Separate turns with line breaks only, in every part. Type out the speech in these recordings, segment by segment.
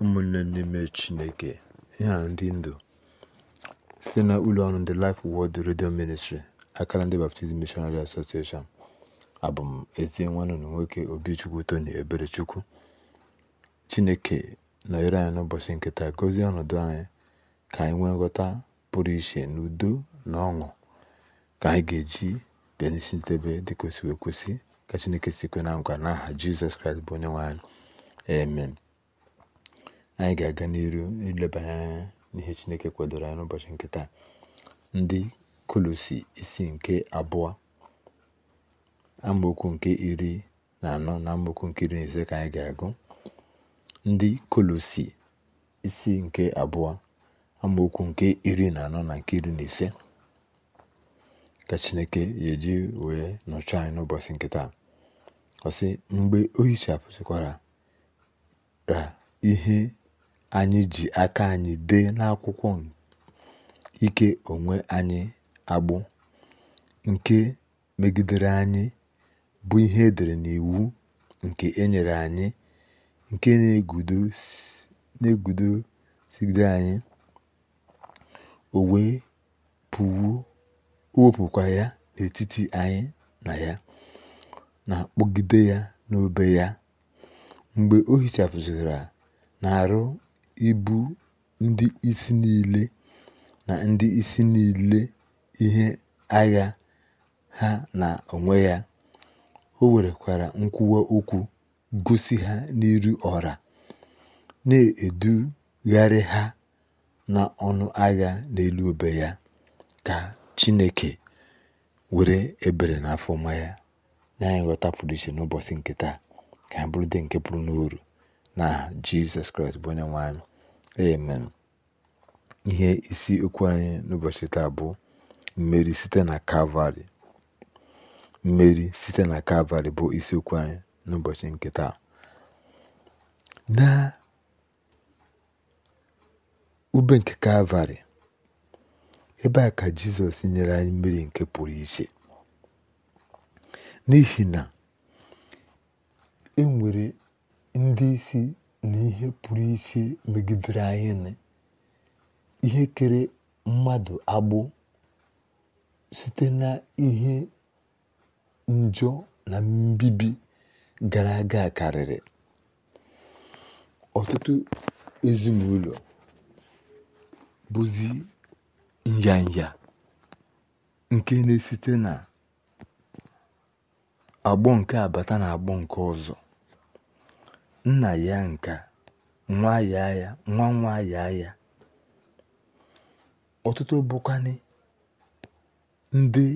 ụmụnne n'ime chineke ihe a ndị ndụ site na ụlọ ọrụ ndị Life Word redio Ministry akara ndị baptizim mishonari asosieshọn abụ m ezi nwanne nwoke Obichukwu Tony Eberechukwu chineke nọnyere anyị n'ụbọchị nkịta gozie ọnọdụ anyị ka anyị nwee nghọta pụrụ iche n'udo na ọṅụ ka anyị ga-eji bịa n'isi ntebe dị kwesịrị ekwesị ka chineke si kwe na nkwa n'aha jizọs kraịst bụ onye nwe amen anyị ga-aga n'iru ilebanye anya n'ihe chineke kwadoro anyị n'ụbọchị nke taa ndị kolosi isi nke abụọ amaokwu nke iri na anọ na amaokwu nke iri na ise ka anyị ga-agụ ndị kolosi isi nke abụọ amaokwu nke iri na anọ na nke iri na ise ka chineke ya eji wee nọchọ anyị n'ụbọchị nke taa sị mgbe o hichapụchịkwara ihe anyị ji aka anyị dee n'akwụkwọ ike onwe anyị agbụ nke megidere anyị bụ ihe edere n'iwu nke enyere anyị nke na sigide anyị o wepụkwa ya n'etiti anyị na ya na-akpọgide ya n'obe ya mgbe o na-arụ ibu ndị isi niile na ndị isi niile ihe agha ha na onwe ya. O werekwara nkwuwa okwu gosi ha n'iru ọra na-edugharị ha na ọnụ agha n'elu obe ya. Ka Chineke were ebere na afọma ya na anyị nghọta pụrụ iche n'ụbọchị nke taa. Ka ha bụrụ ndị nke pụrụ n'uru na Jizọs Kraịst bụ onye nwe anyị. Amen. Ihe isi okwu anyị n'ụbọchị taa bụ mmeri site na Kalvarị. Mmeri site na Kalvarị bụ isiokwu anyị n'ụbọchị nke taa. Na ube nke Kalvarị, ebe a ka Jizọs nyere anyị mmeri nke pụrụ iche. N'ihi na e nwere ndị isi na ihe pụrụ iche megidere anyị na ihe kere mmadụ agbụ site na ihe njọ na mbibi gara aga karịrị ọtụtụ ezinụlọ bụzi nyanya nke na-esite na agbụ nke abata na agbụ nke ọzọ nna ya nka nwa ya ya nwa nwa ya ya ọtụtụ bụkwanị ndị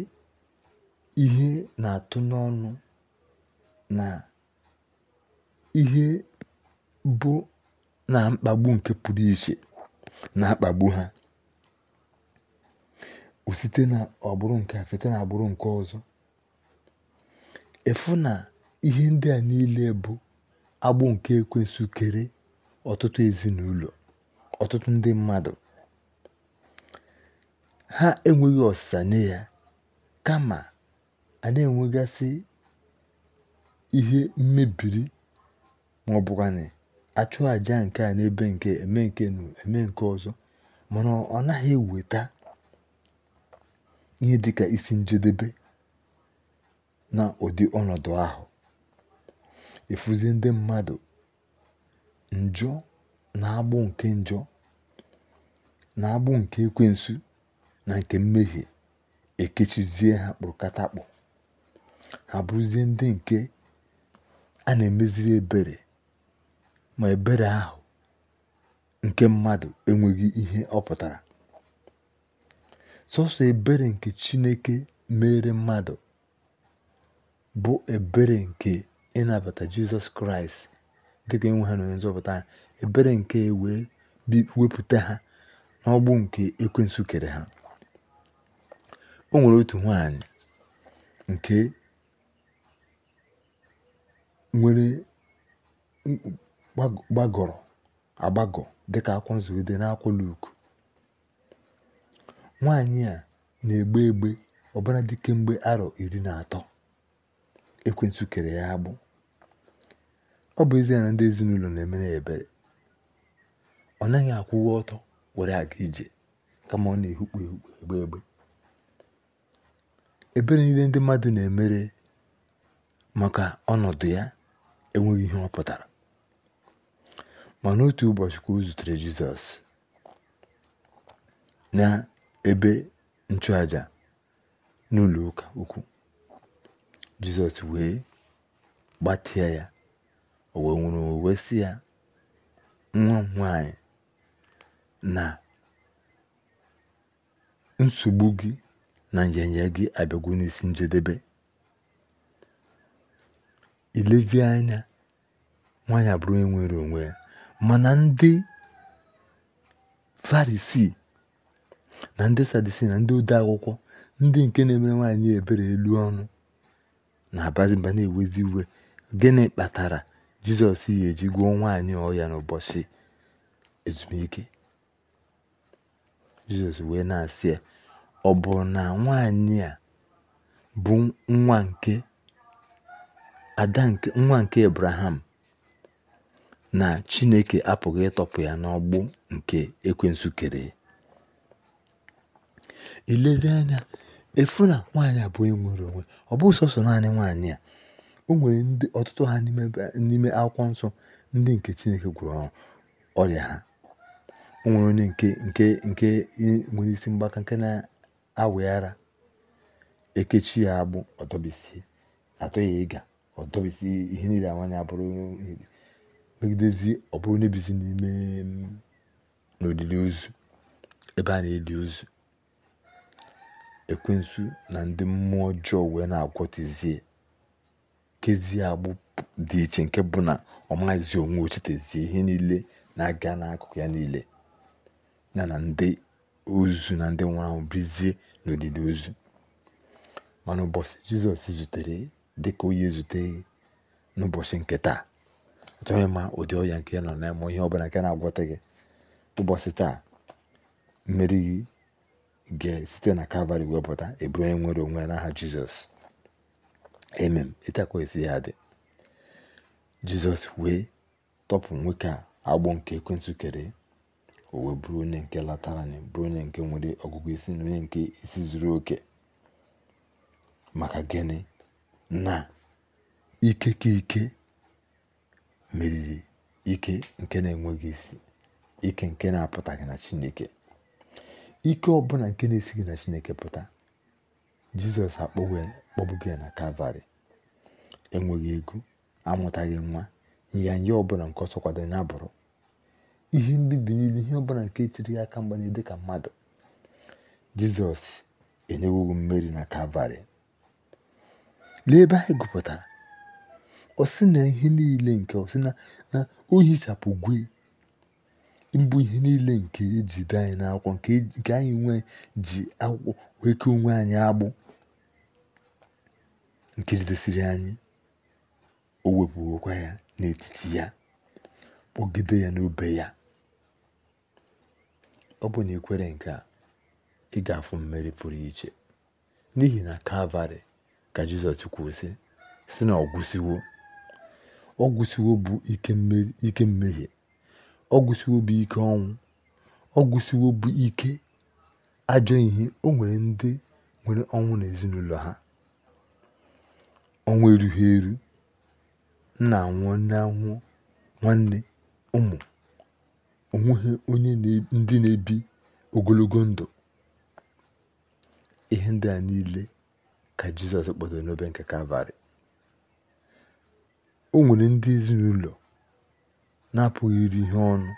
ihe na-atụ n'ọnụ na ihe bụ na mkpagbu nke pụrụ iche na-akpagbu ha site na ọgbụrụ nke site na agbụrụ nke ọzọ efu na ihe ndị a niile bụ agbụ nke ekwensu kere ọtụtụ ezinụlọ ọtụtụ ndị mmadụ ha enweghị ọsịsa nye ya kama a na-enwegasị ihe mmebiri ma ọ bụkwanị achụ àja nke a n'ebe nke eme nke nu eme nke ọzọ mana ọ naghị eweta ihe dịka isi njedebe na ụdị ọnọdụ ahụ Efuzi ndị mmadụ njọ na agbụ nke njọ na agbụ nke ekwensu na nke mmehie ekechizie ha kpụrụkatakpụ ha bụrụzie ndị nke a na-emeziri ebere ma ebere ahụ nke mmadụ enweghị ihe ọ pụtara sọsọ ebere nke chineke mere mmadụ bụ ebere nke ịnabata jizọs kraịst dịka enwe ha na onye nzọpụta ebere nke wee wepụta ha n'ọgbụ nke ekwensu kere ha o nwere otu nwanyị nke nwere gbagọrọ agbagọ dịka akwụkwọ nzugide n'akwụkwọ Luk nwaanyị a na-egbe egbe ọbara dị mgbe arọ iri na atọ ekwensu kere ya agbụ ọ bụ ezie na ndị ezinụlọ na-emere ya ebere ọ naghị akwụwa ọtọ were aga ije kama ọ na-ehukpu ehukpu egbe egbe ebere niile ndị mmadụ na-emere maka ọnọdụ ya enweghị ihe ọ pụtara mana otu ụbọchị ka o zutere jizọs na ebe nchụaja n'ụlọ ụka ukwu jizọs wee gbatịa ya o wee nwere owe si ya nwa m nwanyị na nsogbu gị na nyanya gị abịagwo n'isi njedebe ilezi anya nwaanyị abụrụ onye nwere onwe ya mana ndị farisi na ndị sadisi na ndị ode akwụkwọ ndị nke na-emere nwaanyị ebere elu ọnụ na-abazi na-ewezi iwe gịnị kpatara Jizọs ga eji gwuo nwaanyị ọhịa n'ụbọchị ezumike. Jizọs wee na-asị ya, ọ bụ na nwaanyị a bụ nwa nke ada nwa nke Ebraham na Chineke apụghị ịtọpụ ya n'ọgbụ nke ekwensu kere ya. Ilezi anya efu na nwaanyị a bụ onwe ọ bụ sọsọ naanị nwaanyị a o nwere ndị ọtụtụ ha n'ime akwụkwọ nsọ ndị nke chineke gwụrụ ọrịa ha o nwere onye nke nke nke nwere isi mgbaka nke na-awị ekechi ya agbụ ọdọbisi atọ ya ịga ọdọbisi ihe niile awanya bụrụ megidezi ọ bụrụ onye bizi n'ime n'olili ozu ebe a na-eli ozu ekwensu na ndị mmụọ ọjọọ wee na-agwọtizie kezie agbụ dị iche nke bụ na ọ maghịzi onwe ochitezie ihe niile na-aga n'akụkụ ya niile na na ndị ozu na ndị nwụrụ anwụ bizie n'olili ozu mana ụbọchị jizọs zutere dị ka onye zute n'ụbọchị nke taa achọghị ma ụdị ọya nke nọ na ịmụ ihe ọbụla nke na-agwọta gị ụbọchị taa mmeri gị ga-esite na kalvarị wepụta eburu onye nwere onwe ya n'aha jizọs emem akwa esi ya dị jizọs wee tọpụ nwoke a agbụ nke ekwentị kere o wee bụrụ onye nke latara bụrụ onye nke nwere ọgụgụ isi na onye nke isi zuru oke maka gịnị na ike ka ike meriri ike nke na-enweghị isi ike nke na-apụtaghị na chineke ike ọbụla nke na-esighị na chineke pụta jizọs akpọgbughị na kalvarị enweghị ego amụtaghị nwa nyanya ọbụla nke ọsọ kwadoro ya bụrụ ihe mbibi niile ihe ọbụla nke tiri ya aka mgbanye dị ka mmadụ jizọs enyewoghị mmeri na kalvarị lee ebe anyị gụpụtara ọsị na ihe niile nke ọsị na na o hichapụ gwe mbụ ihe niile nke ejide anyị n'akwụkwọ nke anyị nwe ji akwụkwọ ke onwe anyị agbụ nke jidesiri anyị o wepụwokwa ya n'etiti ya kpọgide ya n'obe ya ọ bụ na ikwere nke a ị ga-afụ mmeri pụrụ iche n'ihi na kalvarị ka jizọs kwuo si na ọgwụsiwo ọgwụsiwo bụ ike mmehie ọgwụsiwo bụ ike ọnwụ ọgwụsiwo bụ ike ajọ ihe o nwere ndị nwere ọnwụ n'ezinụlọ ha ọnwa erughị eru m na nwanne ụmụ onweghị onye ndị na-ebi ogologo ndụ ihe ndị a niile ka jizọs kpọtara n'obe nke kalvarị o nwere ndị ezinụlọ na-apụghị iri ihe ọnụ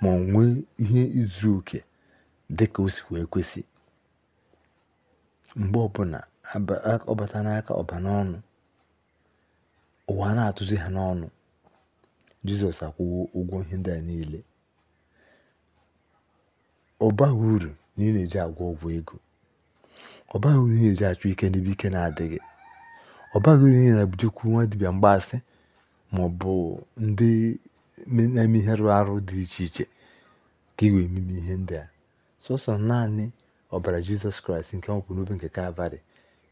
ma ọ nwee ihe izu oke dị ka o si wee kwesị mgbe ọbụla ọbata n'aka ọba n'ọnụ ụwa na-atụzi ha n'ọnụ jizọs akwụwo ụgwọ ihe ndị a niile ọ baghị uru na ị na-eji agwọ ọgwụ ego ọ baghị uru na ị na-eji achụ ike n'ebe ike na-adịghị ọ baghị uru na ị na-ebujikwu nwa dibịa mgbaasị ma ọ bụ ndị na-eme ihe rụrụ arụ dị iche iche ka ị wee meme ihe ndị a sọsọ naanị ọbara jizọs kraịst nke ọ kwụ n'obe nke kalvarị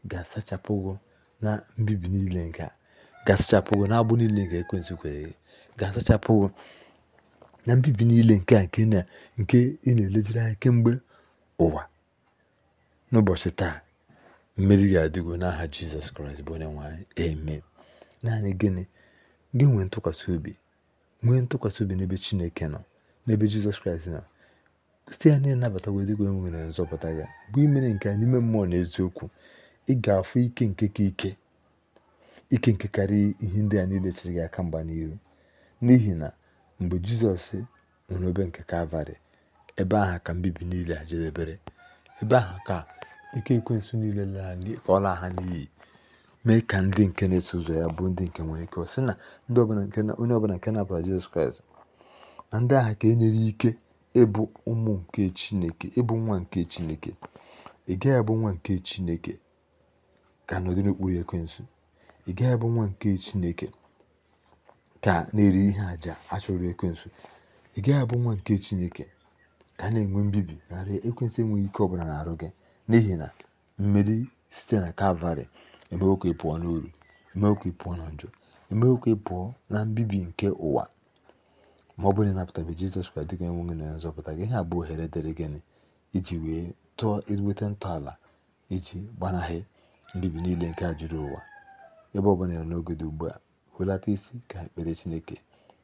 ga-asachapụgo na mbibi niile nke a ga-asachapụgo na agbụ niile nke ekwensụ kwere gị ga-asachapụgo na mbibi niile nke a nke ị na-eledere anya kemgbe ụwa n'ụbọchị taa mmeri ga-adịgo n'aha jizọs kraịst bụ onye nwanyị eme naanị gịnị gị nwee ntụkwasị obi nwee ntụkwasị obi n'ebe chineke nọ n'ebe jizọs kraịst nọ site ya na ịnabata wedịgo enwere nzọpụta ya bụ imere nke a n'ime mmụọ na eziokwu ị ga-afụ ike nke ka ike ike nke karịa ihe ndị a niile chere gị aka mgba n'ihu n'ihi na mgbe jizọs nwere obe nke kalvarị ebe ahụ ka mbibi niile a jedebere ebe ahụ ka ike ekwensu niile ka agha na n'iyi mee ka ndị nke na-eso ụzọ ya bụ ndị nke nwere ike sị na onye ọbụla nke na-abụla jizọs kraịst na ndị agha ka e nyere ike ịbụ ụmụ nke chineke ịbụ nwa nke chineke ị gaghị abụ nwa nke chineke ka nọdụ n'okpuru ekwensu ị gaghị abụ nwa nke chineke ka na-eri ihe àjà achọrọ ekwensu ị gaghị abụ nwa nke chineke ka na-enwe mbibi narị ekwensụ enweghị ike ọbụla na-arụ gị n'ihi na mmeri site na kalvarị emewo ka ị pụọ n'uru emewo pụọ na njọ emewo ka pụọ na mbibi nke ụwa ma ọ bụrụ na ịnapụtabe jizọs kraịst dịka enweghị na nzọpụta gị ihe abụ ohere dịrị gịnị iji wee tụọ ezigbote ntọala iji gbanahị mbibi niile nke a juru ụwa ebe ọbụla nọ n'oge dị ugbu a hụlata isi ka ekpere chineke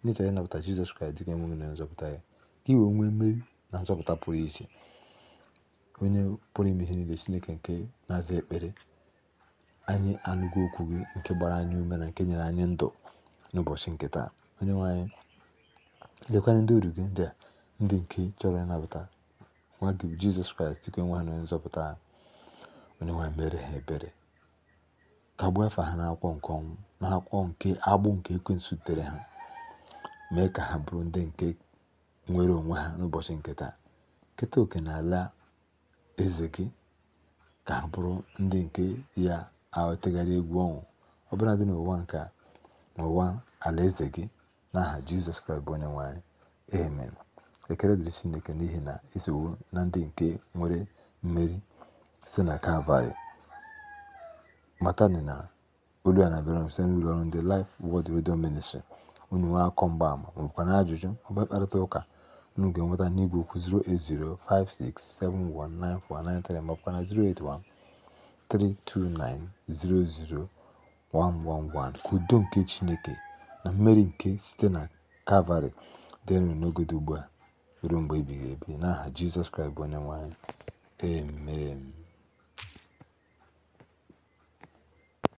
n'ịchọrọ ịnapụta jizọs kraịst dịka enweghị na nzọpụta ya ka iwe nwee mmeri na nzọpụta pụrụ iche onye pụrụ ime ihe niile chineke nke na-aza ekpere anyị anụgo okwu gị nke gbara anyị ume na nke nyere anyị ndụ n'ụbọchị nke taa onye nwe anyị ndị uru gị ndị a ndị nke chọrọ ịnabata nwa gị jizọs kraịst dịka enwe ha na nzọpụta ha onye nwe mere ha ebere tagbuo afa ha n'akwụkwọ nke ọnwụ n'akwụkwọ nke agbụ nke ekwensu tere ha mee ka ha bụrụ ndị nke nwere onwe ha n'ụbọchị nke taa keta oke ala eze gị ka ha bụrụ ndị nke ya ahụtegharị egwu ọnwụ bụla dị n'ụwa nke n'ụwa alaeze gị n'aha jizọs kraịst bụ onye nwe anyị amen dịrị chineke n'ihi na e isowo na ndị nke nwere mmeri site na kalvarị matani na olu a na-abịara site n'ụlọ ọrụ ndị Life wọd Radio Ministry unu nwee akọ mgbaama ma ọbụkwa na ajụjụ maọbụ mkparịta ụka unu ga-enweta n'igwe okwu 08056719493 maọbụkwa na 08132900111 ka udo nke Chineke na mmeri nke site na Kalvarị dịrị n'ogode ugbu a ruo mgbe ebighị ebi n'aha Jizọs Kraịst bụ onye nwe emem.